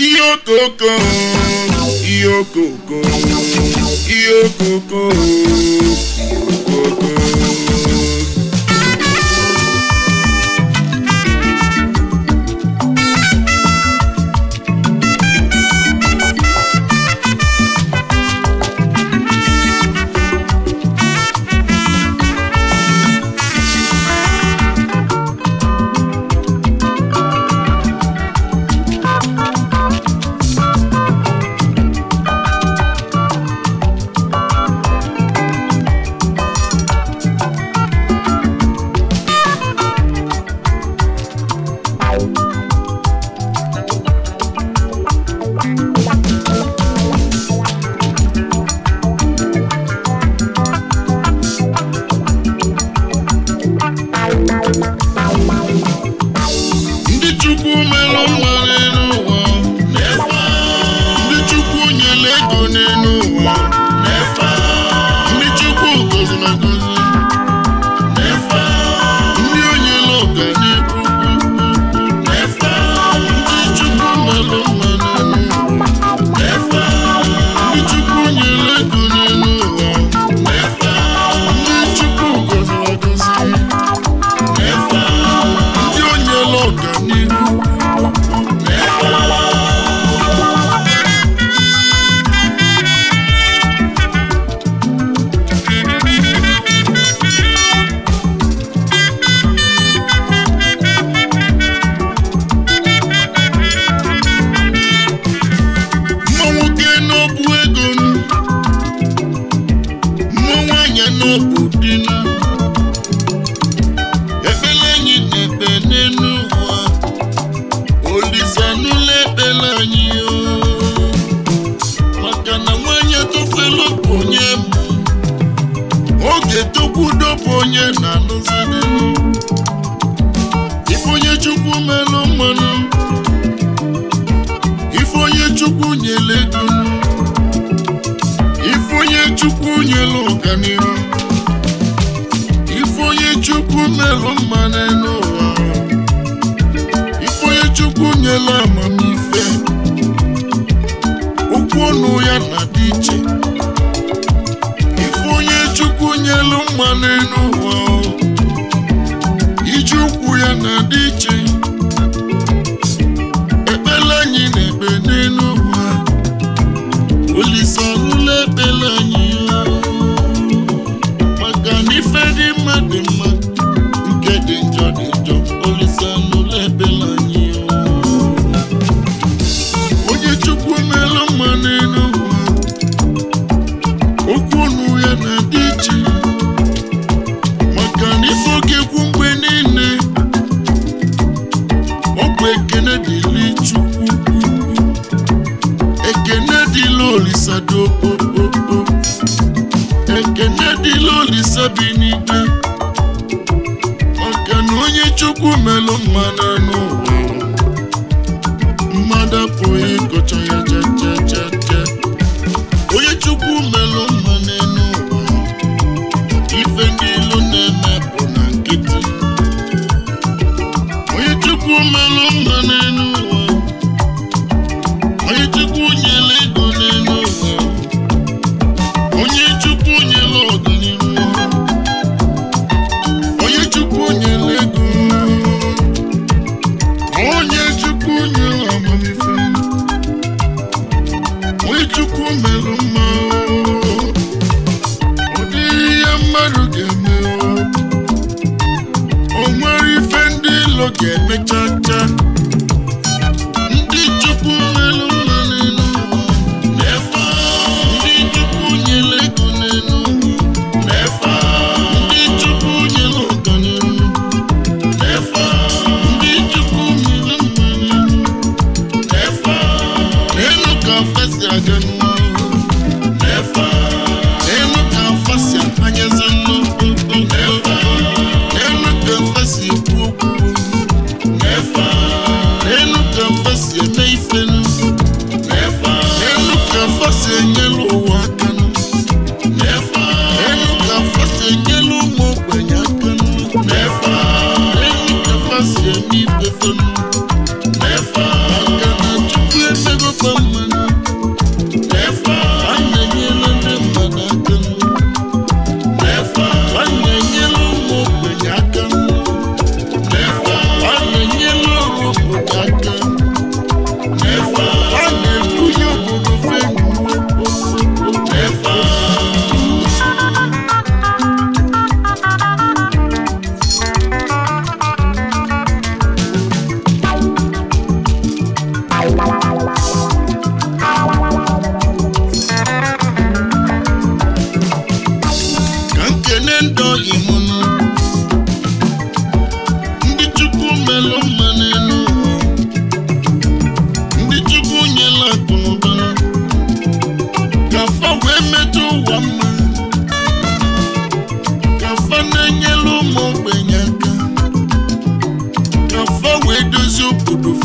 Iyokoko, Iyokoko, Iyokoko, Iyokoko. onye na-alụzi ife onye chukwu melụ mmanụ ife onye chukwu nyele dunu ife onye chukwu nyele ọganihu ife onye chukwu melụ mmanụ n'ụwa ife onye chukwu nyele amamife okwu ọnụ ya na-adị iche ife onye chukwu nyelu mmanụ n'ụwa na dị iche ekpele anyị na-ekpe n'elu Olise ọhụrụ ekpele anyị maka na ife dị mma dị mma nke dị njọ dị n'ikpe maka na onye chukwu melụ mmadụ n'ụwa mmadụ apụghị ịkọcha ya jee mmadụ ga-emewa o nwere ife ndị ilo ga-emecha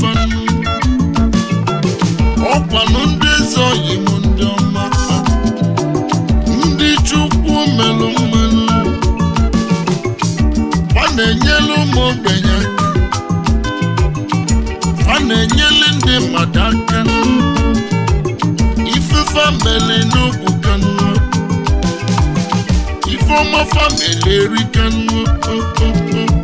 fanụ ọkwanụ ndị eze oyi m ndị ọma ndị chukwu melụ mmanụ fa na-enyelu ụmụ ogbenye fa na-enyelu ndị mmadụ aka ifefa mele n'obu kanụ ifeọma fa mele eri kanụ okpokpo